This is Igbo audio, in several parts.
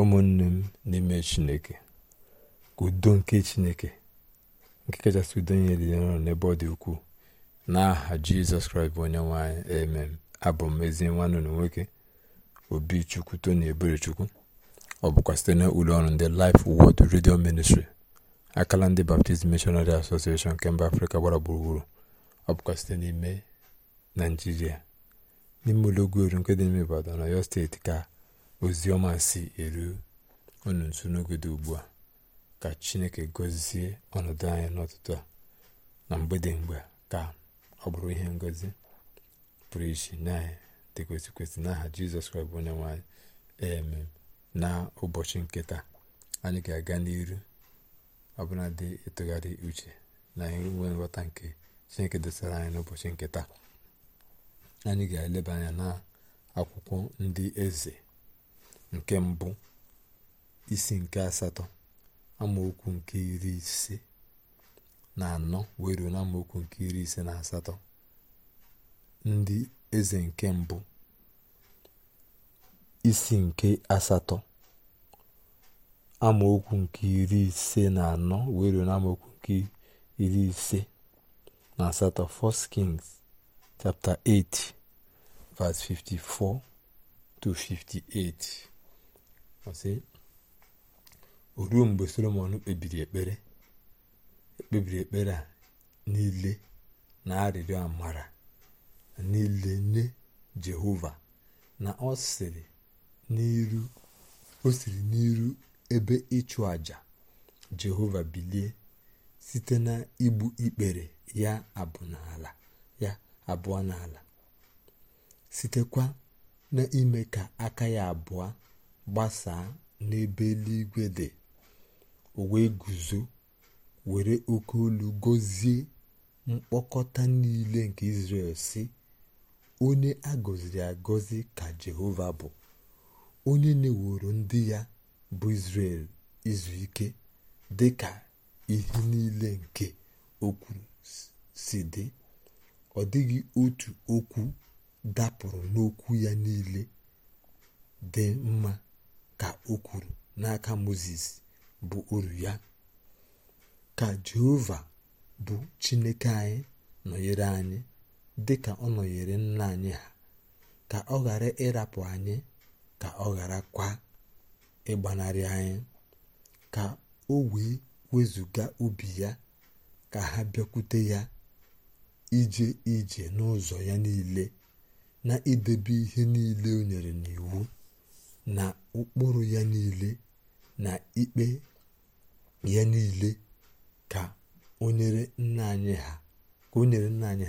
ụmụnne m n'ime chineke ka udo nke chineke nke kachasị udo nyere ya nọ n'ebe ọ dị ukwuu aha jizọs kraịst bụ onye nwanyị emem abụ m ezi nwanne na nwoke obi chukwu tony eberechukwu ọ bụkwa site na ụlọ ọrụ ndị Life Word redio Ministry akala ndị Baptist Missionary Association nke mba afrịka gbara gburugburu ọ bụkwa site n'ime naijiria n'ime ụlọ ogwueru nke dị n'ime Ibadan na Ọyọ steeti ka ọma si eru unu nso n'oge dị ugbu a ka chineke gozie ọnọdụ anyị n'ọtụtụ a na mgbede mgbe ka ọ bụrụ ihe ngozi pụrụ iche na anyị n'aha jizọs kraịst bụ onye nwanyị eme na ụbọchị nketa anyị ga-aga n'iru ọbụla dị ịtụgharị uche na inwe nghọta nke chineke dosara anyị n'ụbọchị nketa anyị ga-eleba anya na akwụkwọ ndị eze nke mbụ isi nke asatọ amaokwu nke iri ise na anọ wee ruo na amaokwu nke iri ise na asatọ ndị eze nke mbụ isi nke asatọ amaokwu nke iri ise na anọ wee ruo na amaokwu nke iri ise na asatọ First Kings chapter 8 verse 54 to 58 ọsị o ruo mgbe solomon kpebiri ekpere ekpebiri ekpere a niile na arịrịọ amara niile nye jehova na ọ n'iru o siri n'iru ebe ịchụ àjà jehova bilie site na igbu ikpere ya abụ n'ala ya abụọ n'ala sitekwa n'ime ka aka ya abụọ gbasaa n'ebe eluigwe dị o wee guzo were oke olu gọzie mkpokọta niile nke israel si onye agọziri ya agọzi ka Jehova bụ onye na-eworo ndị ya bụ israel izu ike dị ka ihe niile nke okwu si dị ọ dịghị otu okwu dapụrụ n'okwu ya niile dị mma ka o kwuru n'aka moses bụ uru ya ka jehova bụ chineke anyị nọnyere anyị dị ka ọ nọnyere nna anyị ha ka ọ ghara ịrapụ anyị ka ọ ghara kwa ịgbanarị anyị ka o wee wezụga obi ya ka ha bịakwute ya ije ije n'ụzọ ya niile na idebe ihe niile o nyere n'iwu na ụkpụrụ ya niile na ikpe ya niile ka o nyere nna anyị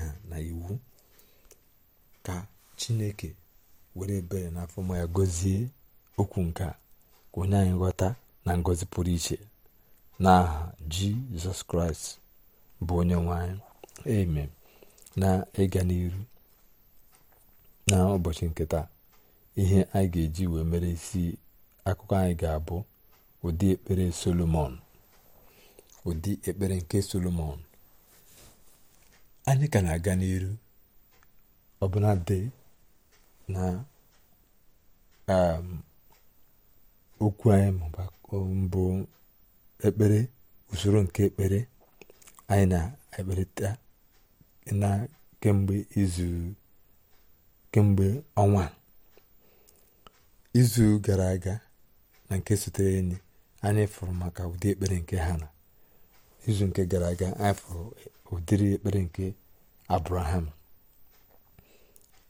ha na iwu ka chineke were bere n'afọ ma ya gọzie okwu nke a ka onye anyị ghọta na ngozi pụrụ iche n'aha jizọs kraịst bụ onye nwanyị anyị na ịga n'iru na ụbọchị nke ihe anyị ga-eji wee mere isi akụkọ anyị ga-abụ ụdị ekpere solomon ụdị ekpere nke solomon anyị ka na-aga n'iru ọbụla dị na um, okwu anyị mbụ ekpere usoro nke ekpere anyị na-ekperịta na kemgbe izu kemgbe ọnwa izu gara aga na nke sotere enyi anyị fụrụ maka ụdị ekpere nke hana izu nke gara aga anyị fụrụ ụdịrị ekpere nke abraham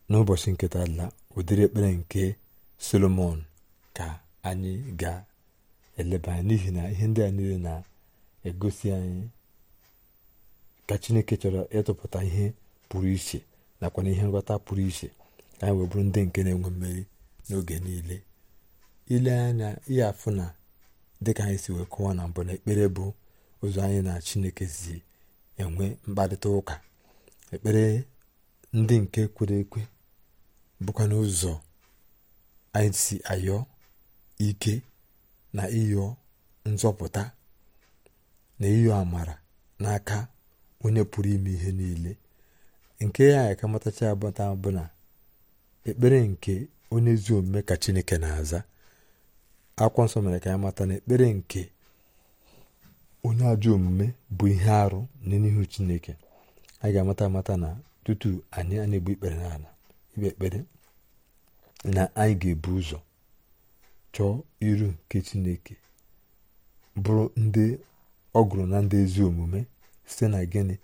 n'ụbọchị nketa la ụdịrị ekpere nke solomon ka anyị ga-eleba anya n'ihi na ihe ndị a niile na-egosi anyị ka chineke chọrọ ịtụpụta ihe pụrụ iche nakwa na ihe nghọta pụrụ iche anyị wee bụrụ ndị nke na-enwe mmeri n'oge niile ile anya ihe afụ na dịka anyị si wee kụwa na mbụ na ekpere bụ ụzọ anyị na chineke si enwe mkparịta ụka ekpere ndị nke kwere ekwe bụkwa n'ụzọ anyị si ayọ ike na ịyọ nzọpụta na ịyọ amara n'aka onye pụrụ ime ihe niile nke ya ka matacha abụta bụ na ekpere nke onye ezi omume ka chineke na-aza akwụkwọ nsọ mere ka anyị mata na ekpere nke onye ajọ omume bụ ihe arụ n'ihu chineke anyị ga-amata amata na tutu anyị a na-egbu ikpere n'ala ikpe ekpere na anyị ga-ebu ụzọ chọọ iru nke chineke bụrụ ndị ọgụrụ na ndị ezi omume site na gịnị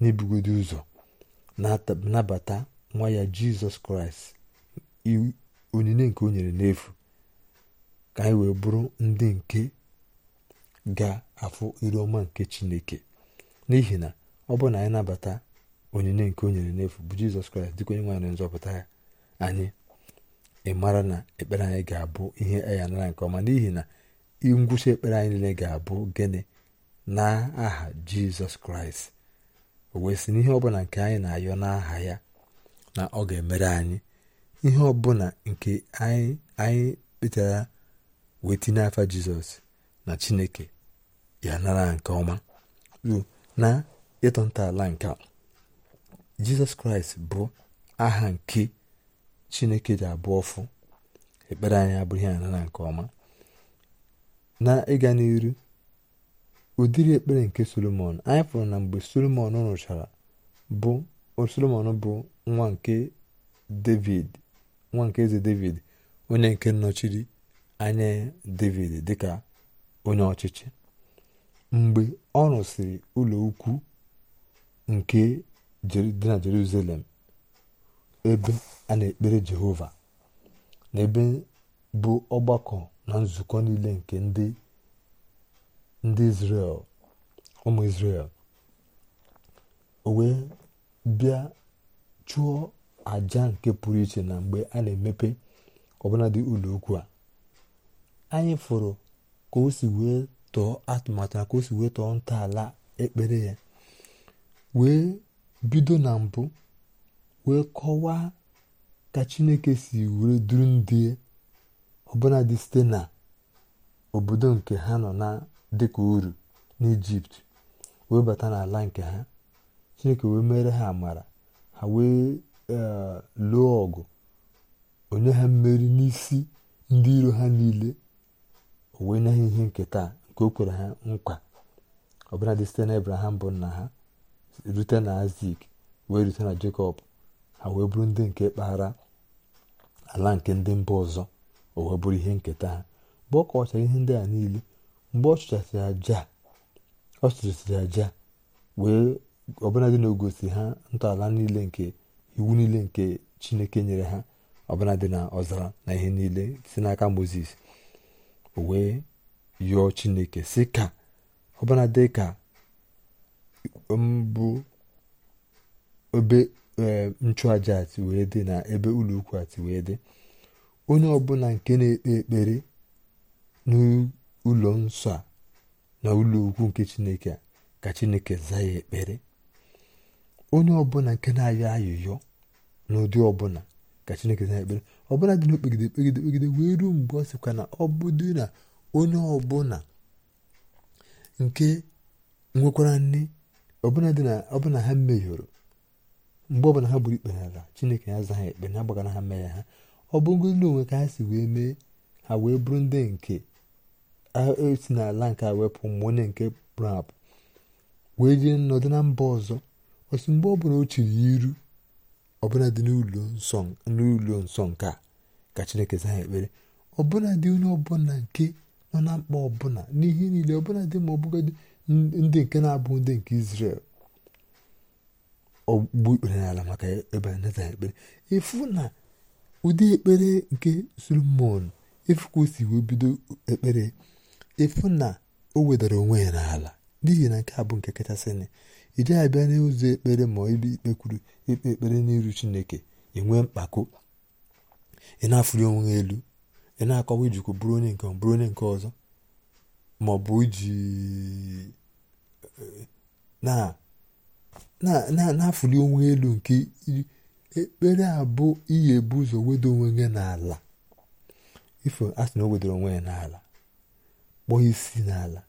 n'ibugodi ụzọ nabata nwa ya jizọs kraịst onyinye nke o nyere n'efu ka anyị wee bụrụ ndị nke ga-afụ iru ọma nke chineke n'ihi na ọ bụrụ na anyị nabata onyinye nke o nyere n'efu bụ jizọs kraịst dịka onye nwanyị nzọpụta ya anyị ịmara na ekpere anyị ga-abụ ihe e anyị nara nke ọma n'ihi na ngwụcha ekpere anyị niile ga-abụ gịnị na aha jizọs kraịst o wee sị n'ihe ọbụla nke anyị na-ayọ n'aha ya na ọ ga-emere anyị ihe ọbụla nke anyị anyị kpetara wee tinye afa jizọs na chineke ya nara nke ọma na ịtọ ntọala nke a jizọs kraịst bụ aha nke chineke dị abụọ ọfụ ekpere anyị abụrụ ya nara nke ọma na ịga n'iru ụdịrị ekpere nke solomon anyị pụrụ na mgbe solomon rụchara bụ solomon bụ nwa nke david nwa nke eze david onye nke nnọchiri anya david dịka onye ọchịchị mgbe ọ rụsịrị ụlọ ukwu nke dị na jerusalem ebe a na-ekpere jehova na ebe bụ ọgbakọ na nzukọ niile nke ndị ndị israel ụmụ israel o wee bịa chụọ àja nke pụrụ iche na mgbe a na-emepe ọbụladị ụlọokwu a anyị fụrụ ka o si wee tọọ atụmatụ na ka o si wee tọọ ntọala ekpere ya wee bido na mbụ wee kọwaa ka chineke si were duru ndị ọbụladị site na obodo nke ha nọ na dịka uru n'ijipt wee bata n'ala nke ha chineke wee mere ha amara ha wee lụọ ọgụ onye ha mmeri n'isi ndị iro ha niile o wee nye ha ihe nketa nke o kwere ha nkwa ọbụladị site na bụ nna ha rute na Azik wee rute na Jekọb ha wee bụrụ ndị nke kpaghara ala nke ndị mba ọzọ o wee bụrụ ihe nketa ha mgbe ọ kọchara ihe ndị a niile mgbe ọ chụchasịrị aja ọ aja wee ọbụladị na ha ntọala niile nke iwu niile nke chineke nyere ha ọbụla na ọzara na ihe niile si n'aka moses o wee yụọ chineke si ka ọbụla dị ka mbụ um, obe um, nchụaja ati wee dị na ebe ụlọ ukwu ati wee dị onye ọbụla nke na-ekpe ekpere n'ụlọ nsọ a na ụlọ ukwu nke chineke ka chineke zaa ya ekpere onye ọbụla nke na-ayọ ayụyọ n'ụdị ọbụla ka chineke na ekpere ọbụla dị n'okpegide okpegide kpegide wee ruo mgbe ọ sịkwa na ọ bụdị na onye ọbụla nke nwekwara nne ọbụla dị na ọbụla ha mmehiọrọ mgbe ọbụla ha gburu ikpe n'ala chineke ya aza ha ekpe na agbaghara ha mee ha ọ bụrụgodị na onwe ka ha si wee mee ha wee bụrụ ndị nke esi n'ala nke a wepụ ma onye nke pụrụ apụ wee jee nọdụ na mba ọzọ otu mgbe ọ bụla o chiri iru ọbụla dị n'ụlọ nsọ nke a ka chineke zaa ekpere ọbụla dị onye ọbụla nke nọ na mkpa ọbụla n'ihe niile ọbụla dị ma ọbụgodị ndị nke na-abụ ndị nke Izrel ọgbugbu ikpere n'ala maka ebe anata ekpere efu na ụdị ekpere nke Solomon efu ka o si wee bido ekpere efu na o wedara onwe ya n'ala n'ihi na nke a bụ nke kachasị ị dịghị abịa n'ụzọ ekpere ma ibe ikpe kwuru ikpe ekpere n'iru chineke ị nwee mkpako ị na-afụli onwe elu ị na-akọwa ijikwa bụrụ onye nke bụrụ onye nke ọzọ maọbụ ọ iji na-afụli onwe elu nke ekpere abụ bụ iyi ebu ụzọ wedo onwe gị n'ala ifo asị na o wedoro onwe ya n'ala kpọọ isi n'ala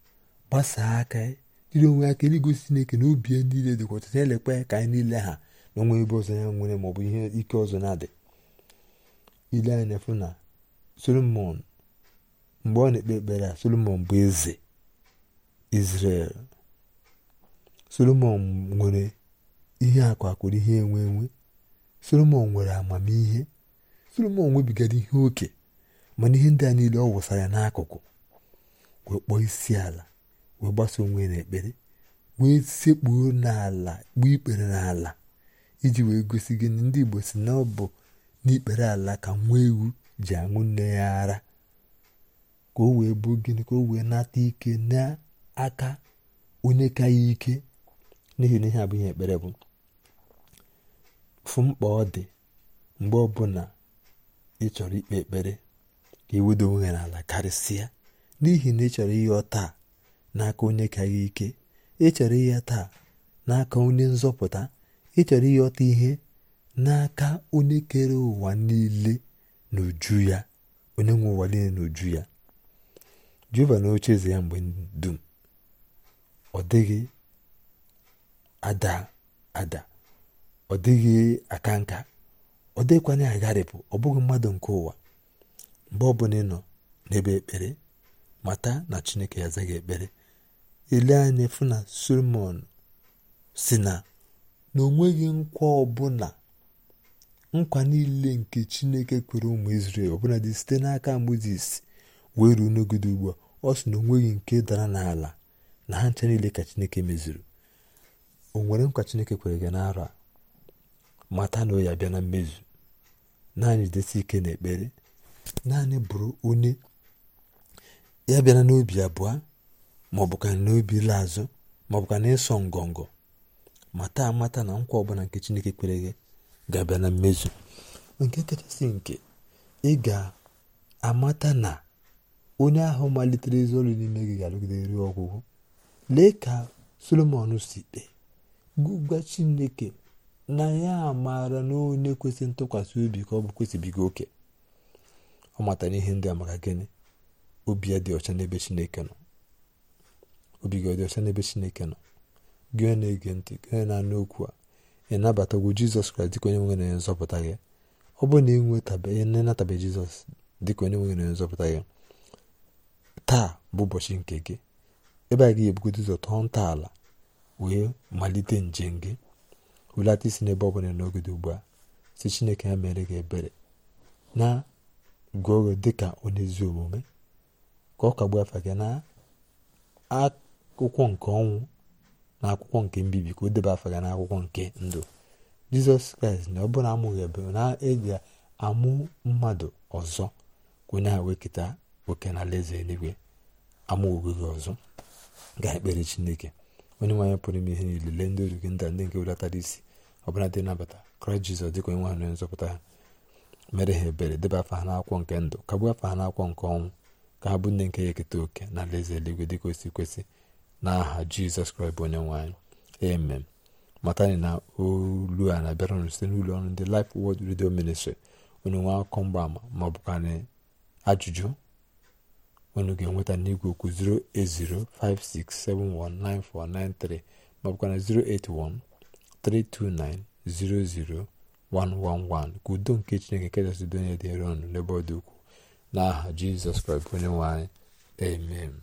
gbasaa aka ya jiri onwe aka igosi chineke na obi niile dịkwa ọcha na-elekwa ka anyị niile ha na onwe ebe ọzọ ya nwere maọbụ ihe ike ọzọ na-adị ile anya na-efu na solomon mgbe ọ na-ekpe ekpere a solomon bụ eze izrel solomon nwere ihe akụ akụrụ ihe enwe enwe solomon nwere amamihe solomon nwebigara ihe oke mana ihe ndị a niile ọ wụsara n'akụkụ wee kpọọ isi ala wee gbasa onwe ya n'ekpere wee sekpuo n'ala kpuo ikpere n'ala iji wee gosi gị na ndị igbo si na ọ bụ n'ikpere ala ka nwa ewu ji aṅụ nne ya ara ka o wee bụ gịnị ka o wee nata ike n'aka onye ka ya ike n'ihi na ihe abụghị ekpere bụ fụ mkpa ọ dị mgbe ọbụla ị chọrọ ikpe ekpere ka iwedo onwe n'ala karịsịa n'ihi na ị chọrọ ihe ọ taa n'aka onye ka gị ike ịchọrọ ihe taa n'aka onye nzọpụta ịchọrọ ịghọta ihe n'aka onye kere ụwa niile n'uju ya onye nwe ụwa niile n'uju ya juba na oche eze ya mgbe dum ọ dịghị ada ada ọ dịghị aka nka ọ dịghịkwanye agharịpụ ọ bụghị mmadụ nke ụwa mgbe ọbụla ị nọ n'ebe ekpere mata na chineke ya azaghị ekpere ele anya efu na solomon si na na o nkwa ọbụla nkwa niile nke chineke kwere ụmụ israel ọbụla dị site n'aka moses wee ruo n'ogide ugbu a ọ sị na o nke dara n'ala na ha ncha niile ka chineke mezuru o nwere nkwa chineke kwere gị n'arọ a mata na ọ ya bịa na mmezu naanị desi ike na ekpere naanị bụrụ onye ya bịara n'obi abụọ maọbụ ka n'obi ile azụ maọbụ ka n'ịsọ ngọngọ mata amata na nkwa ọbụla nke chineke kwere gị ga-abịa na mmezu nke kachasị nke ị ga-amata na onye ahụ malitere ezi ọrụ n'ime gị ga-arụgide ruo ọgwụgwụ lee ka solomon si kpee gwa chineke na ya maara na onye kwesịrị ntụkwasị obi ka ọ bụ kwesịbigo oke ọ matara ihe ndị a maka gịnị obi ya dị ọcha n'ebe chineke nọ obi gị ọ dị ọcha n'ebe chineke nọ gị na-ege ntị gị na-anụ okwu a ị nabatagwo jizọs kraịst dịka onye nwere nzọpụta gị ọ bụrụ na ị nwetabeghị jizọs dịka onye nwere nzọpụta gị taa bụ ụbọchị nke gị ebe a ga-ebugodo ụzọ nta ntọala wee malite njem gị hulata isi n'ebe ọ bụla n'oge dị ugbu a si chineke ya mere gị ebere na gụọ gị dịka onye ezi omume ka ọ kagbuo afa gị na akwụkwọ nke ọnwụ na akwụkwọ nke mbibi ka o deba afa ya n'akwụkwọ nke ndụ jizọs kraịst na ọ bụrụ amụghị na eji amụ mmadụ ọzọ ka onye ahụ wekịta oke na alaeze eluigwe amụghị gị ọzọ ga-ekpere chineke onye nwaanyị pụrụ ime ihe niile lee ndị oru gị ndị nke welatara isi ọbụla dị nabata kraịst jizọs dịka onye nwaanyị nzọpụta ha mere ha ebere deba afa ha n'akwụkwọ nke ndụ kagbuo afa ha n'akwụkwọ nke ọnwụ ka ha bụ ndị nke ya eketa oke na alaeze eluigwe dịka o kwesị n'aha jizọs kraịst bụ onye nwaanyị amen matani na olu a na abịaranụ site n'ụlọ ọrụ ndị Life Word Radio Ministry onye nwe akụkọ mgbaama ama ọ ajụjụ unu ga-enweta n'igwe okwu 08056719493 ma ọ 08132900111 ka udo nke Chineke kachasị donye dịrị ọnụ n'ebe ọ dị ukwuu n'aha Jizọs Kraịst onye nwe amen